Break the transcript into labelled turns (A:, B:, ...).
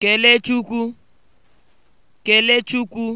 A: Kelechukwu. Kelechukwu